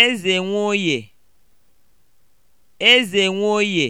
Eze nwoye. eze nwoye.